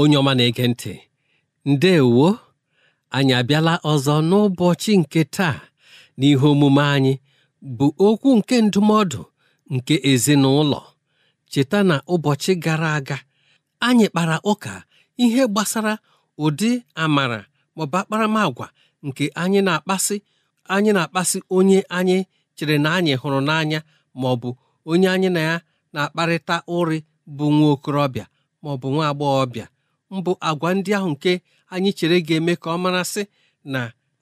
onye ọma na-ege ntị ndeewo anyị abịala ọzọ n'ụbọchị nke taa n'ihe omume anyị bụ okwu nke ndụmọdụ nke ezinụlọ cheta na ụbọchị gara aga anyị kpara ụka ihe gbasara ụdị amara maọbụ akparamagwa nke anyị na-akpasị anyị na-akpasị onye anyị chere na anyị hụrụ n'anya maọbụ onye anyị na ya na-akparịta ụrị bụ nwa okorobịa maọbụ nwa agbọghọbịa mbụ agwa ndị ahụ nke anyị chere ga-eme ka ọ marasị na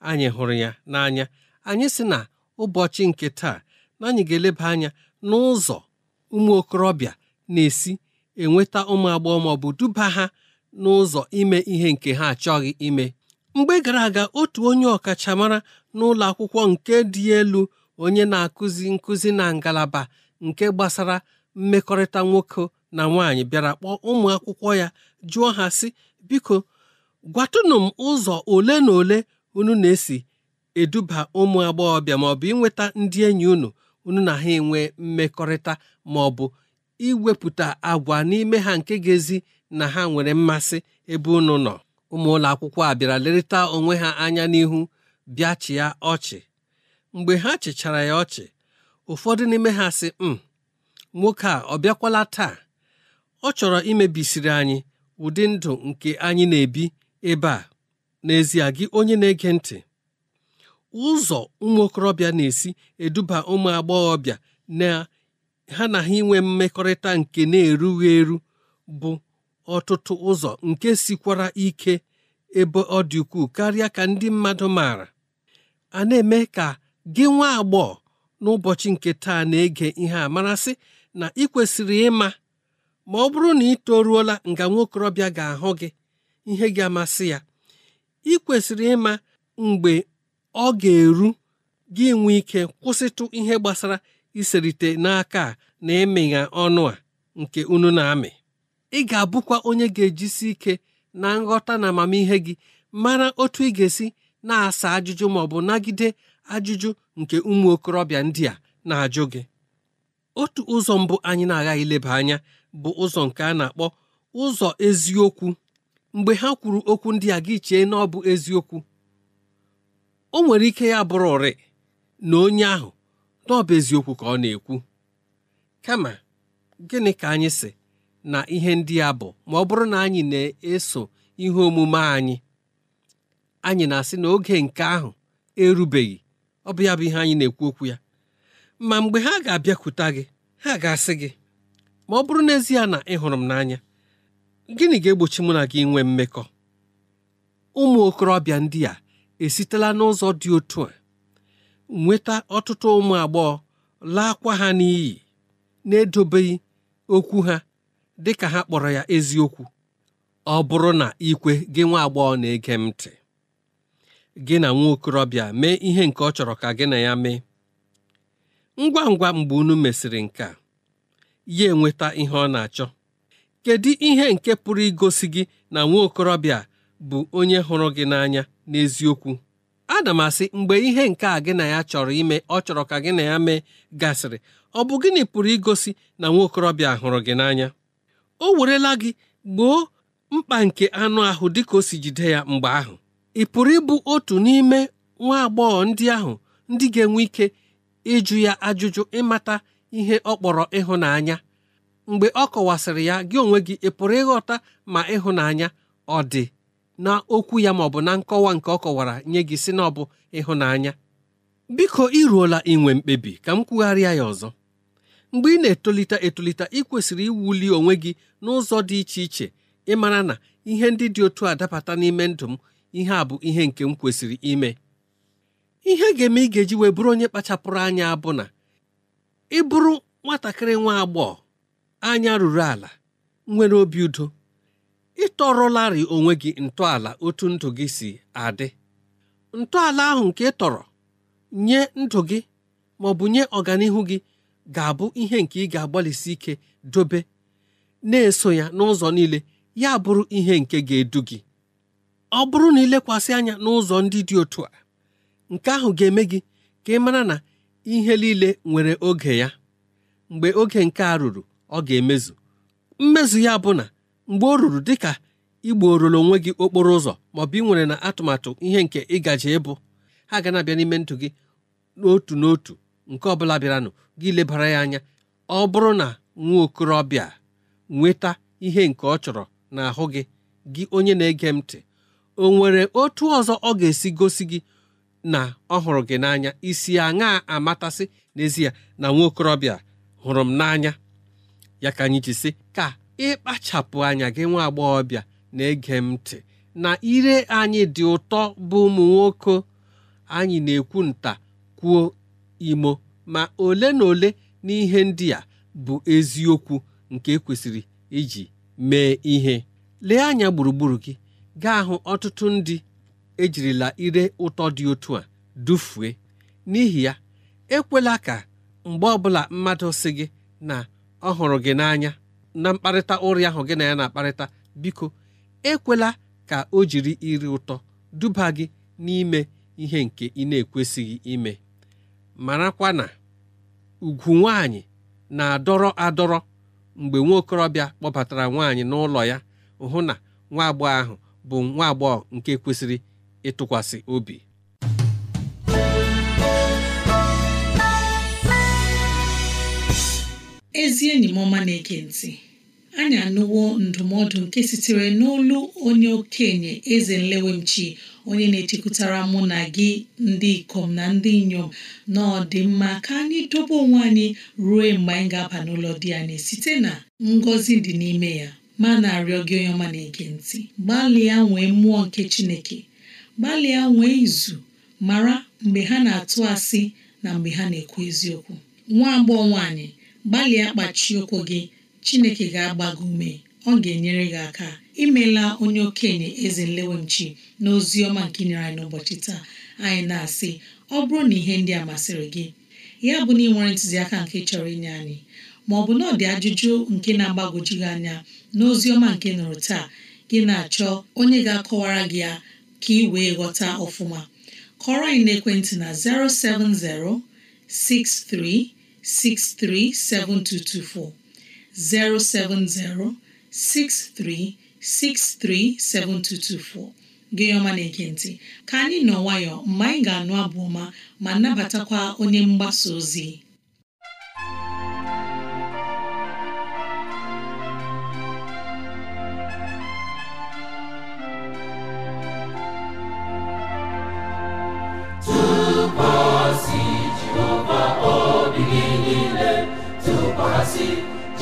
anyị hụrụ ya n'anya anyị si na ụbọchị nke taa na anyị ga-eleba anya n'ụzọ ụmụ okorobịa na-esi enweta ụmụ agbọghọ ma ọ bụ duba ha n'ụzọ ime ihe nke ha achọghị ime mgbe gara aga otu onye ọkachamara n'ụlọ akwụkwọ nke dị elu onye na-akụzi nkụzi na ngalaba nke gbasara mmekọrịta nwoke na nwaanyị bịara kpọọ ụmụ akwụkwọ ya jụọ ha sị biko gwatụnụ m ụzọ ole na ole unu na-esi eduba ụmụ agbọghọbịa maọbụ inweta ndị enyi unu unu na ha enwe mmekọrịta maọbụ iwepụta agwa n'ime ha nke ga-ezi na ha nwere mmasị ebe unu nọ ụmụ ụlọ akwụkwọ a bịara lerịta onwe ha anya n'ihu bịa chịa ọchị mgbe ha chịchara ya ọchị ụfọdụ n'ime ha sị m hmm, nwoke a ọ bịakwala taa ọ chọrọ imebisiri anyị ụdị ndụ nke anyị na-ebi ebe a n'ezie gị onye na-ege ntị ụzọ ụmụ okorobịa na-esi eduba ụmụ agbọghọbịa na ha na ha inwe mmekọrịta nke na-erughị eru bụ ọtụtụ ụzọ nke sikwara ike ebe ọ dị ukwuu karịa ka ndị mmadụ maara a na-eme ka gị nwa agbọghọ n'ụbọchị nke taa na-ege ihe a marasị na ị kwesịrị ịma ma ọ bụrụ na ị toruola nga nwa okorobịa ga-ahụ gị ihe ga-amasị ya ị kwesịrị ịma mgbe ọ ga-eru gị nwee ike kwụsịtụ ihe gbasara iserite n'aka a na ịmịnya ọnụ a nke unu na-amị ị ga-abụkwa onye ga-ejisi ike na nghọta na amamihe gị mara otu ị ga-esi na-asa ajụjụ ma ọ bụ nagide ajụjụ nke ụmụ okorobịa ndị a na-ajụ gị otu ụzọ mbụ anyị na agaghị ileba anya bụ ụzọ nke a na-akpọ ụzọ eziokwu mgbe ha kwuru okwu ndị a gị chee na ọ bụ eziokwu o nwere ike ya bụrụ ụrị na onye ahụ na ọ bụ eziokwu ka ọ na-ekwu kama gịnị ka anyị si na ihe ndị a bụ ma ọ bụrụ na anyị na-eso ihe omume anyị anyị na-asị na oge nke ahụ erubeghị ọ bụ ya bụ ihe anyị na-ekwu okwu ya ma mgbe ha ga-abịakwute gị ha ga-asị gị ma ọ bụrụ n'ezie na ị hụrụ m n'anya gịnị ga-egbochi mụ na gị nwee mmekọ ụmụ okorobịa ndị a esitela n'ụzọ dị otu a nweta ọtụtụ ụmụ agbọghọ laakwa ha n'iyi na-edobeghị okwu ha dị ka ha kpọrọ ya eziokwu ọ bụrụ na ikwe gị nwa agbọghọ na-ege m ntị gị na nwa okorobịa mee ihe nke ọ chọrọ ka gị na ya mee ngwa ngwa mgbe unu mesịrị nke a ya enweta ihe ọ na-achọ kedu ihe nke pụrụ igosi gị na nwa okorobịa bụ onye hụrụ gị n'anya n'eziokwu ana m asị mgbe ihe nke a gị na ya chọrọ ime ọ chọrọ ka gị na ya mee gasịrị ọ bụ gịnị pụrụ igosi na nwa okorobịa hụrụ gị n'anya o werela gị gboo mkpa nke anụ ahụ dịka o si jide ya mgbe ahụ ị pụrụ ịbụ otu n'ime nwa agbọghọ ndị ahụ ndị ga-enwe ike ịjụ ya ajụjụ ịmata ihe ọ kpọrọ ịhụnanya mgbe ọ kọwasịrị ya gị onwe gị ị pụrụ ịghọta ma ịhụnanya ọ dị na okwu ya ma ọ bụ na nkọwa nke ọ kọwara nye gị si na ọ bụ ịhụnanya biko iruola inwe mkpebi ka m kwugharịa ya ọzọ mgbe ị na-etolite etolite ị kwesịrị iwuli onwe gị n'ụzọ dị iche iche ịmara na ihe ndị dị otu a dapata n'ime ndụ m ihe a bụ ihe nke m kwesịrị ime ihe ga-eme ị ga-eji wee bụrụ onye kpachapụrụ anya bụ na ị bụrụ nwatakịrị nwa agbọghọ anya ruru ala nwere obi udo ịtọrọlarị onwe gị ntọala otu ndụ gị si adị ntọala ahụ nke ị tọrọ nye ndụ gị ma ọ bụ nye ọganihu gị ga-abụ ihe nke ị ga-agbalịsi ike dobe na-eso ya n'ụzọ niile ya bụrụ ihe nke ga-edu gị ọ bụrụ na lekwasị anya n'ụzọ ndị dị otu a nke ahụ ga-eme gị ka ị mara na ihe niile nwere oge ya mgbe oge nke a ruru ọ ga-emezu mmezu ya bụ na mgbe ọ ruru dịka igborolo onwe gị okporo ụzọ maọbụ ị nwere na atụmatụ ihe nke ịgaji ịbụ ha ga na-abịa n'ime ntụ gị n'otu n'otu nke ọbụla bịaranụ gị lebara ya anya ọ bụrụ na nwa okorobịa nweta ihe nke ọ chọrọ n'ahụ gị gị onye na-ege m ntị o nwere otu ọzọ ọ ga-esi gosi gị na ọ hụrụ gị n'anya isi aṅa amatasị n'ezie na nwa okorobịa hụrụ m n'anya ya ka anyị ji sị ka ịkpachapụ anya gị nwa agbọghọbịa na-ege m ntị na ire anyị dị ụtọ bụ ụmụ nwoke anyị na-ekwu nta kwuo imo ma ole na ole n'ihe ndị a bụ eziokwu nke ekwesịrị iji mee ihe lee anya gburugburu gị gaa hụ ọtụtụ ndị ejirila ire ụtọ dị otu a dufue n'ihi ya ekwela ka mgbe ọbụla mmadụ si gị na ọ hụrụ gị n'anya na mkparịta ụrị ahụ gị na ya na-akparịta biko ekwela ka o jiri iri ụtọ duba gị n'ime ihe nke ị na-ekwesịghị ime marakwa na ugwu nwaanyị na-adọrọ adọrọ mgbe nwa okorobịa kpọbatara nwaanyị n'ụlọ ya hụ na nwa agbọghọ ahụ bụ nwa agbọghọ nke kwesịrị ịtụkwasị obi ezi enyi m na-ege ntị anyị anụwo ndụmọdụ nke sitere n'olu onye okenye eze nlewemchi onye na-echekwutara mụ na gị ndị ikom na ndị inyom na ọdịmma ka anyị dobe onwe anyị ruo mgbe anyị ga-aba n'ụlọ di anyị site na ngọzi dị n'ime ya ma na-arịọ gị onye ọma na-ege ntị gbalịa nwee mmụọ nke chineke gbalịa nwee izu mara mgbe ha na-atụ asị na mgbe ha na-ekwu eziokwu nwa agbọghọ nwaanyị gbalịa kpachi ụkwụ gị Chineke ga agbago ume ọ ga-enyere gị aka imela onye okenye eze nlewemchi na ozi ọma nke nyere anyị n'ụbọchị taa anyị na-asị ọ bụrụ na ihe ndị a masịrị gị ya bụ na ị nwere ntụziaka nke chọrọ inye anyị ma ọ bụ na ọ dị ajụjụ nke na-agbagwoju anya na ọma nke nụrụ taa gị na-achọ onye ga-akọwara gị ya ka ị wee ghọta ọfụma kọrọ anyị n'ekwentị na 070 6363 7224 070 6363 7224 gị ọma na-ege ntị ka anyị nọ nwayọọ mgbe anyị ga-anụ abụ ọma ma nabatakwa onye mgbasa ozi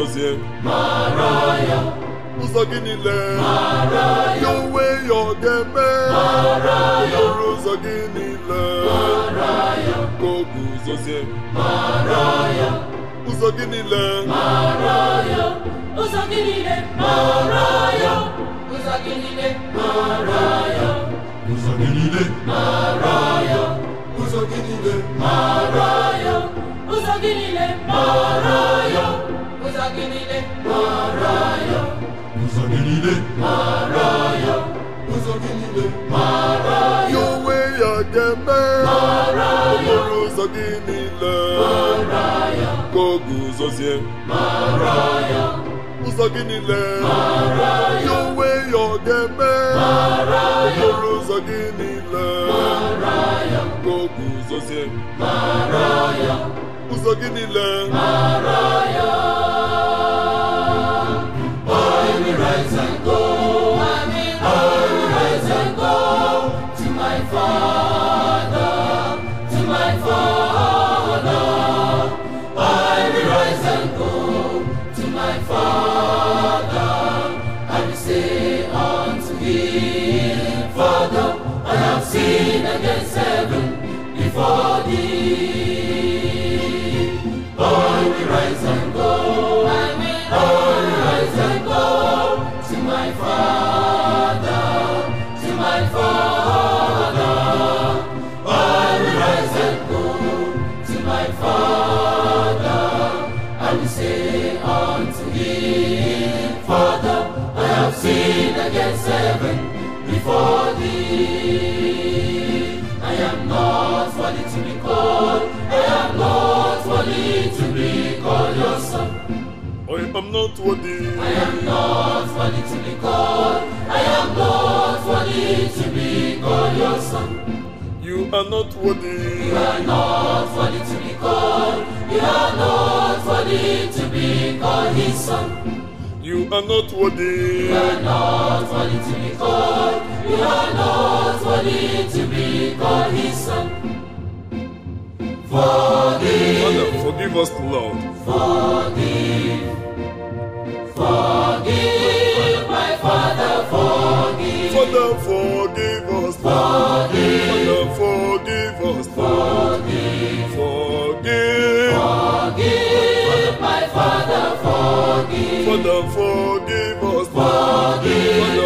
sozie ụzọ gị niile ya onwe ya ọ ga-eme lụrụ ụzọ gị niile ka ụzọ gị niile ụzọ gị niile ụzọ gị niile ụzọ gị niile ụzọ gị niile ụzọ gị niile Uza gidile maraya Uza gidile maraya Uza gidile maraya Yowe ya geme Maraya Uza gidile Maraya Koguzozie Maraya Uza gidile Maraya Yowe ya geme Maraya Uza gidile Maraya Koguzozie Maraya ụzọ gị niile I am not worthy. I am not worthy to be called. I am not worthy to be called your son. You are not worthy. You are not worthy to be called. You are not worthy to be called his son. You are not worthy. You are not worthy to be called. You are not worthy to be called his son. Forgive. Father, forgive us, Lord. Forgive. Forgive my Father, forgive. Father, forgive us. Forgive. forgive my Father, forgive. Forgive.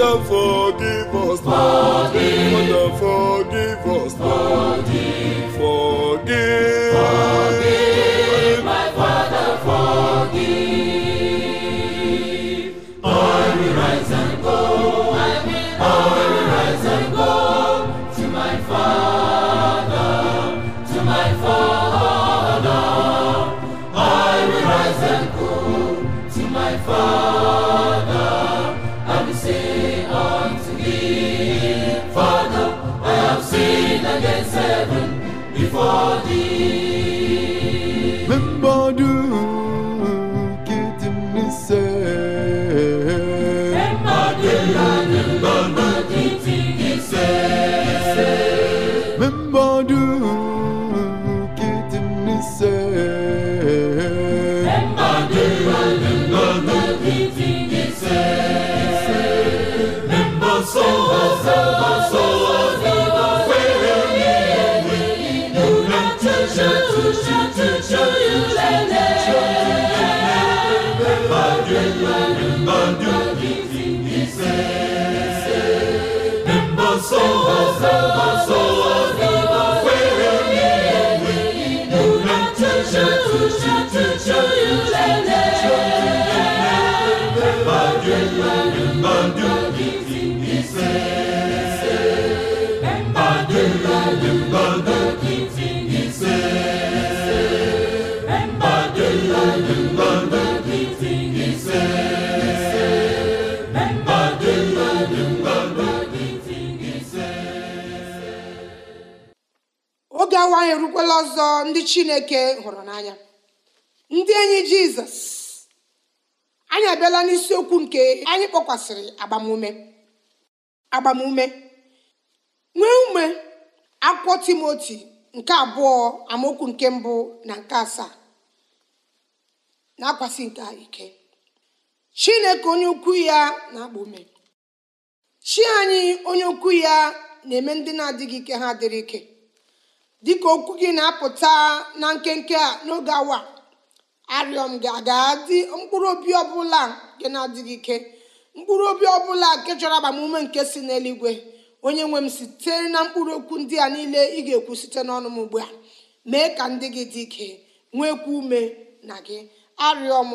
Father, forgive us. Forgive. Father, forgive us. Forgive. Forgive. forgive. agawa anyị erukwala ọzọ ndị chineke hụrụ n'anya ndị enyi jizọs anyị abịala n'isiokwu nke anyị kpọkwasịrị agbamume agbamume nwee ume akwụkwọ timoti nke abụọ amaokwu nke mbụ na nke asaa na-akwasị nke ike chineke onye ukwu ya na akpọ ume chi anyị onye ukwu ya na-eme ndị na-adịghị ike ha dịrị ike dịka okwu gị na-apụta na nkenke a n'oge awa arịọ m gị aga dị mkpụrụ obi ọbụla nke na-adịghị ike mkpụrụ obi ọbụla nke chọrọ agbamume nke si n'eluigwe onye nwe m site na mkpụrụ okwu ndị a niile ị ga-ekwu site n'ọnụ m ugbu a mee ka ndị gị dị ike nwekwa ume na gị arịọ m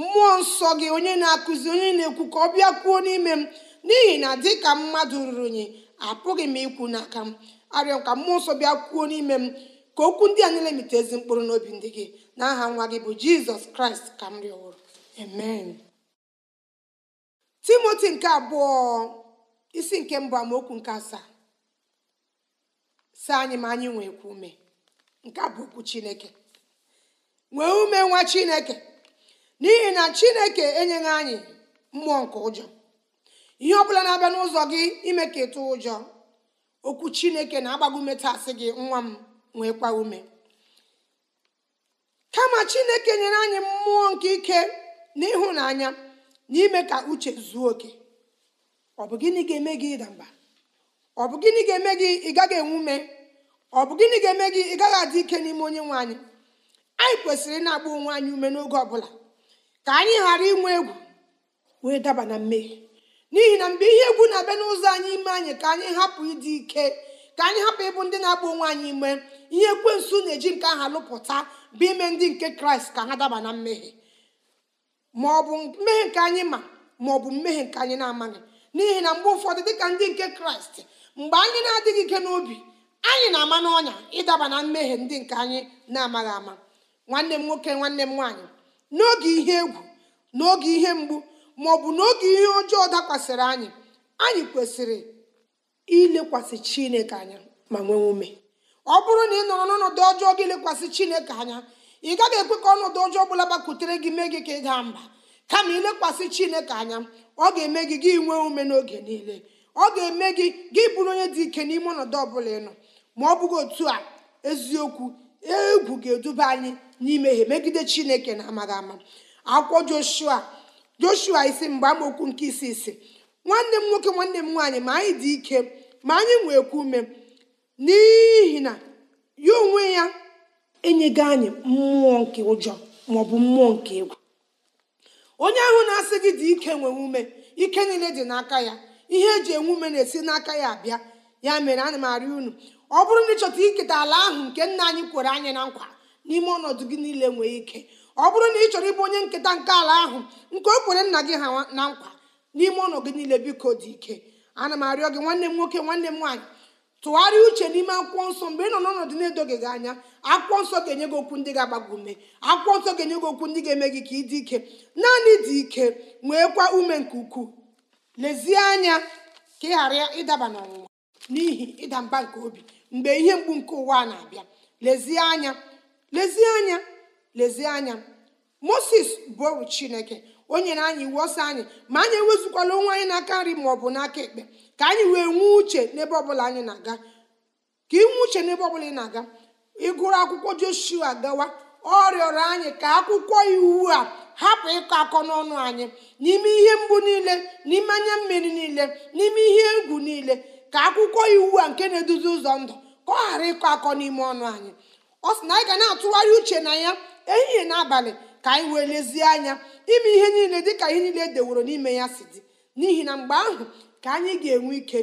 mmụọ nsọ gị onye na-akụzi onye na-ekwu ka ọ bịa kwuo n'ime m n'ihi na dịka mmadụ ruru unyi apụghị m ikwu n'aka m arịọ ka mmụọ nsọ bịa kwuo n'ime m ka okwu ndị a niile mite ezi mkpụrụ n'obi ndị gị na aha nwa gị bụ jizọs kraịst ka m rịọwụrụ amen timoti nke abụọ isi nke mbụ amaokwu nke asaa si anyị ma anyị nwee ume nke bụ okwu chineke nwee ume nwa chineke n'ihi na chineke enyeghị anyị mmụọ nke ụjọ ihe ọ bụla na-abịa n'ụzọ gị ime ka ịtụ ụjọ okwu chineke na-agbago ume tasị gị nwa m nwekwa ume kama chineke nyere anyị mmụọ nke ike na ịhụnanya na ime ka uche zuo oke ọ bụ gịnị ga-eme gị ịda mba ọ bụ gịnị ga-eme gị ị gaghị enwe ume ọ bụ gịnị ga-eme gị ị gaghị adị ike n'ime onye nwe anyị anyị kwesịrị na-agba onwe anyị ume n'oge ọbụla ka anyị ghara inwe egwu wee daba na mmehie n'ihi na mgbe ihe egwu na-abịa n'ụzọ anyị ime anyị ka anyị hapụ ịdị ike ka anyị hapụ ịbụ ndị na-agba onwe anyị ime ihe nso na-eji nke aha lụpụta bụ ime ndị nke kraịst ka ha daba na mmehie ma ọ bụ mmehie nke anyị ma ma ọ bụ mmehie nke anyị na-amaghị n'ihi na mgbe ụfọdụ dịka ndị nke kraịst mgbe anyị na-adịghị ike n'obi anyị na-ama n'ọnya ịdaba na mmehie ndị nke anyị na-amaghị ama nwanne m nwoke nwanne m nwaanyị n'oge ihe egwu n'oge ihe mgbu ma bụ n'oge ihe ọjọọ dakwasịrị anyị anyị kwesịrị ilekwasị chineke anya ma nwee ume ọ bụrụ na ị nọrọ n'ọnọdụ ọjọọ gị lekwasị chineke anya ị gaghị ekwe ka ọnọdụ ọjọọ ọbụla gbakwutere gị mee gị ka ị daa mba kama ilekwasị chineke anya ọ ga-eme gị gị nwee ume n'oge niile ọ ga-eme gị gị bụrụ onye dị ike n'ime ọnọdụ ọbụla nọ ma ọ bụghị otu a eziokwu egwu ga-eduba anyị n'imehie megide chineke na amaghị ama akwụkwọ joshua joshua isi mgbe amaokwu nke isi isi nwanne m nwoke nwanne m nwaanyị ma anyị dị ike ma anyị nwekwa ume n'ihi na ya onwe ya enyego anyị mmụọ nke ụjọ bụ mmụọ nke egwu onye ahụ na-asị gị dị ike nwee ume ike niile dị n'aka ya ihe eji enwe ume na-esi n'aka ya abịa ya mere ana m arị unu ọ bụrụ na ịchọta iketa ala ahụ nke nna anyị kwere anyị na nkwa n'ime ọnọdụ gị niile nwee ike ọ bụrụ na ị chọrọ ịbụ onye nketa nke ala ahụ nke o kwere nna gị ha na nkwa n'ime ụlọ gị niile biko dị ike ana m arịọ gị nwanne m nwoke nwanne m nwaanyị tụgharịa uche n'ime akwụkwọ nsọ mgbe ị nọ n'ọnọdụ na edoge gị anya akwụkwọ nsọ ga-enye gị okwu ndị ga-agbago ume akwụkwọ nsọ ga-enye gị okwu ndị ga-eme gị ka ị dị ike naanị dị ike nweekwa ume nke ukwuu lezie anya ka ị ghara ịdaba n'ọnwụnwa n'ihi ịda mba nke obi mgbe ihe mgbu nke ụwa na-abịa lezie anya lezie anya lezie anya moses bụ chineke o nyere anyị iwu ọsọ anyị ma anyị ewezukwala onwe anyị n'aka nri ma ọ bụ n'aka ekpe ka anyị wee nwee uche n'ebe ọbụla anyị na-aga ka ị uche n'ebe ọbụla ị na-aga ịgụrụ akwụkwọ joshua gawa ọ rịọrọ anyị ka akwụkwọ iwu a hapụ ịkọ akọ n'ọnụ anyị n'ime ihe mgbu niile n'ime anya mmiri niile n'ime ihe egwu niile ka akwụkwọ iwu a nke na-eduzi ụzọ ndụ ka ọ ghara ịkọ akọ n'ime ọnụ anyị ọ sị na anyị ga na-atụgharị uche na ya ehihie na abalị ka anyị wee lezie anya ime ihe niile dịka ihe niile edeworo n'ime ya si dị n'ihi na mgbe ahụ ka anyị ga-enwe ike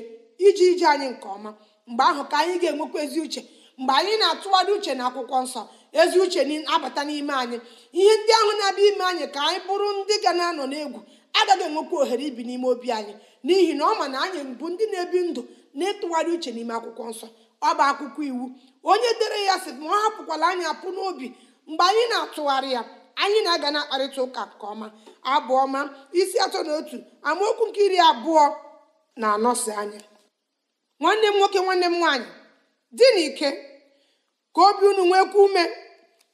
iji ije anyị nke ọma mgbe ahụ ka anyị ga-enwekwa ezi uche mgbe anyị na-atụgharị uche na akwụkwọ nsọ ezi uche abata n'ime anyị ihe ndị ahụ na-abịa ime anyị ka anyị bụrụ ndị ga na-anọ n'egwu agaghị enwekwa ohere ibi n'ime obi anyị n'ihi na ọ ma na anyị bụ ndị na-ebi ndụ na-etụgharị uche n'ime akwụkwọ nsọ ọ bụ akwụkwọ iwu onye dere ya sị ma ọ hapụkwala anyị apụ n'obi mgbe anyị na-atụgharị ya anyị na-aga na akparịta ụka nke ọma abụọ ma isi atọ na otu amaokwu nke iri abụọ na anọsi anya nwanne m nwoke nwanne m nwaanyị dị n'ike ka obi unu nwekwa ume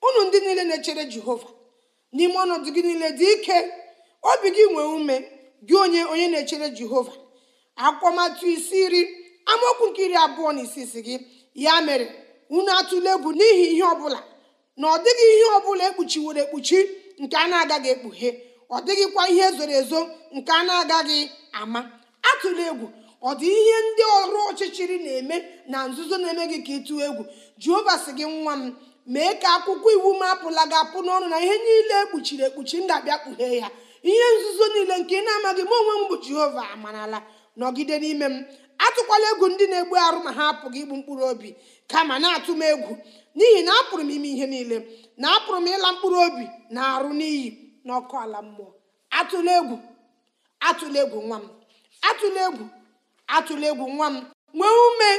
unu ndị niile na-echere jehova n'ime ọnọdụ gị niile dị ike obi gị nwee ume gị onye onye na-echere jehova akwụkwọ isi iri amaokwu nke iri abụọ na isi isi gị ya mere unu atụle egwu n'ihi ihe ọ bụla. na ọ dịghị ihe ọ bụla ekpuchiworo ekpuchi nke a na-agaghị ekpughe ọ dịghịkwa ihe zoro ezo nke a na-agaghị ama atụla egwu ọ dị ihe ndị ọrụ ọchịchịrị na-eme na nzuzo na-eme gị ka ịtụ egwu jehova sị gị nwa m mee ka akwụkwọ iwu m apụla gị apụ n'ọnụ na ihe niile ekpuchiri ekpuchi ndabịa ga kpughee ya ihe nzuzo niile nke ị na-amaghị m onwe m bụ jehova amarala nọgide n'ime m atụkwala egwu ndị na-egbu arụ ma ha apụghị igbu mkpụrụ obi kama na-atụ m egwu n'ihi na apụrụ m ime ihe niile na apụrụ m ịla mkpụrụ obi na arụ n'iyi ọkụ ala mmụọ atụla egwu atụla egwu nwa m atụla egwu atụla egwu nwa m nwee ume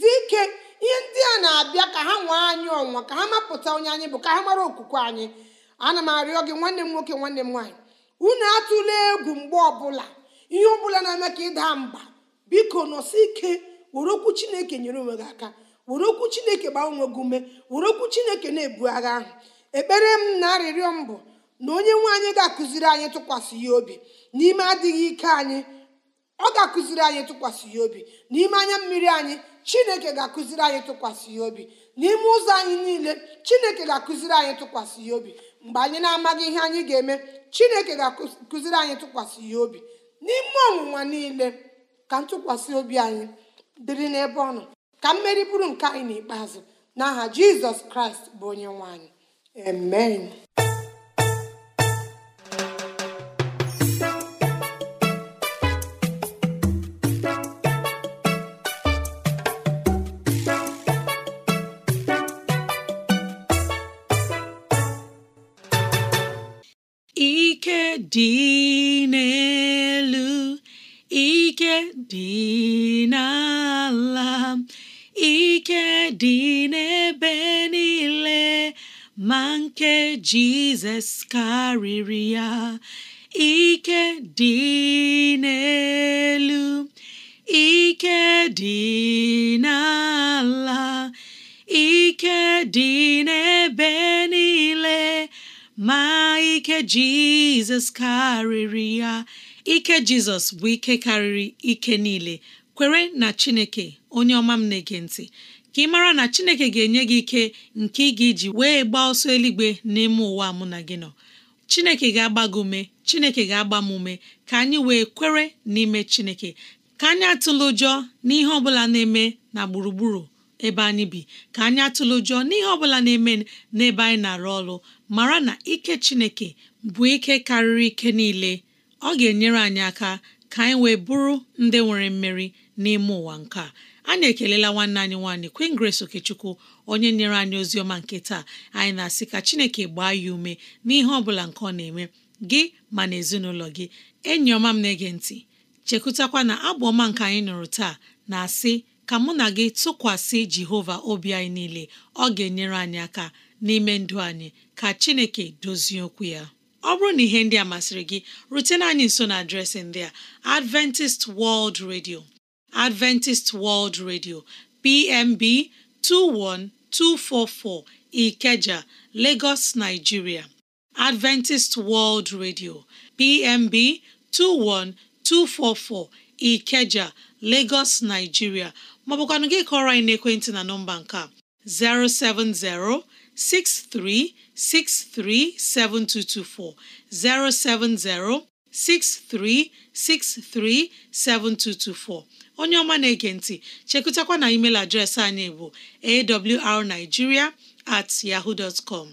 dị ike ihe ndị a na-abịa ka ha nwee anyị ọnwa ka ha mapụta onye anyị bụ ka ha mara okwukwe anyị ana m arịọ gị nwanne m nwoke nwanne m nwaanyị unu atụla egwu mgbe ọbụla ihe ọ bụla na-eme ka ịda mba biko nọsi ike were okwu chineke nyere onwe gị aka were okwu chineke gbaa onwe gị ume were okwu chineke na-ebu agha ahụ ekpere m na arịrịọ m bụ na onye nwe anyị ga-akụziri anyị tụkwasị ya obi n'ime adịghị ike anyị ọ ga-akụziri anyị tụkwasị ya obi n'ime anya mmiri anyị chineke ga-akụziri anyị tụkwasị ya obi n'ime ụzọ anyị niile chineke ga-akụziri anyị tụkwasị ya obi mgbe anyị na-amaghị ihe anyị ga-eme chineke ga-akụziri anyị tụkwasị ya obi n'ime ọnwụnwa niile ka ntụkwasị obi anyị dịrị n'ebe ọ nọ ka mmeri bụrụ nke anyị n'ikpeazụ n'aha jizọs kraịst bụ onye nwanyị anyị amen ike dị dị n'ala ike dị n'ebe niile ma nke Jizọs karịrị ya ike dị n'elu ike dị n'ala ike dị n'ebe niile ma ike Jizọs karịrị ya ike jizọs bụ ike karịrị ike niile kwere na chineke onye ọma m na-ege ntị ka ị mara na chineke ga-enye gị ike nke ị ga-eji wee gbaa ọsọ eluigwe n'ime ụwa mụ na gị nọ chineke ga-agba gị ume chineke ga-agba m ume ka anyị wee kwere n'ime chineke ka anyị atụla ụjọ n'ihe ọ bụla na-eme na gburugburu ebe anyị bi ka anyị atụla ụjọ n'ihe ọ bụla na-eme n'ebe anyị na-arụ ọrụ mara na ike chineke bụ ike karịrị ike niile ọ ga-enyere anyị aka ka anyị wee bụrụ ndị nwere mmeri n'ime ụwa nke a anyị ekelela nwanne anyị nwaanyị Queen Grace Okechukwu onye nyere anyị ozi ọma nke taa anyị na-asị ka Chineke gbaa ya ume n'ihe ọ bụla nke ọ na-eme gị ma na ezinụlọ gị enyi ọma m na-ege ntị chekụtakwa na abụ ọma nke anyị nụrụ taa na-asị ka mụ na gị tụkwasị Jehova obi anyị niile ọ ga-enyere anyị aka n'ime ndụ anyị ka Chineke dozie okwu ya ọ bụrụ na ihe ndị a masịrị gị rutena anyị nso na adreesị ndị a Adventist World Radio Adventist World Radio PMB 21244 Ikeja Lagos Nigeria Adventist World Radio PMB 21244 Ikeja Lagos Nigeria maọbụkwanụ gị kọrọ anyị n'ekwentị na nọmba nke a 070 7224 070 63637224 onye ọma na-ege ntị chekụtakwa na email adreesị anyị bụ awrnigeria at yahoo dot com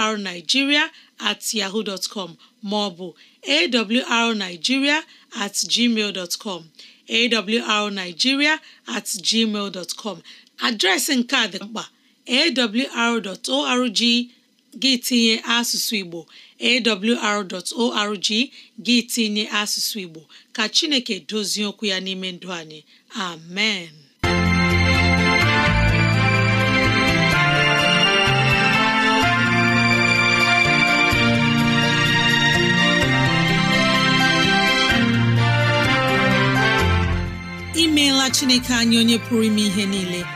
awrnigeria at yahoo dot com ma ọ bụ awrnigeria at gmail dot com awrnigeria at gmail dot com adreesị nke a dị mkpa awr.org gị tinye asụsụ Igbo awr.org gị tinye asụsụ Igbo ka Chineke dozie okwu ya n'ime ndụ anyị amen imeela Chineke anyị onye pụrụ ime ihe niile